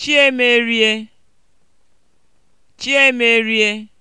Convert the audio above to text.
Chiemerie Chiemerie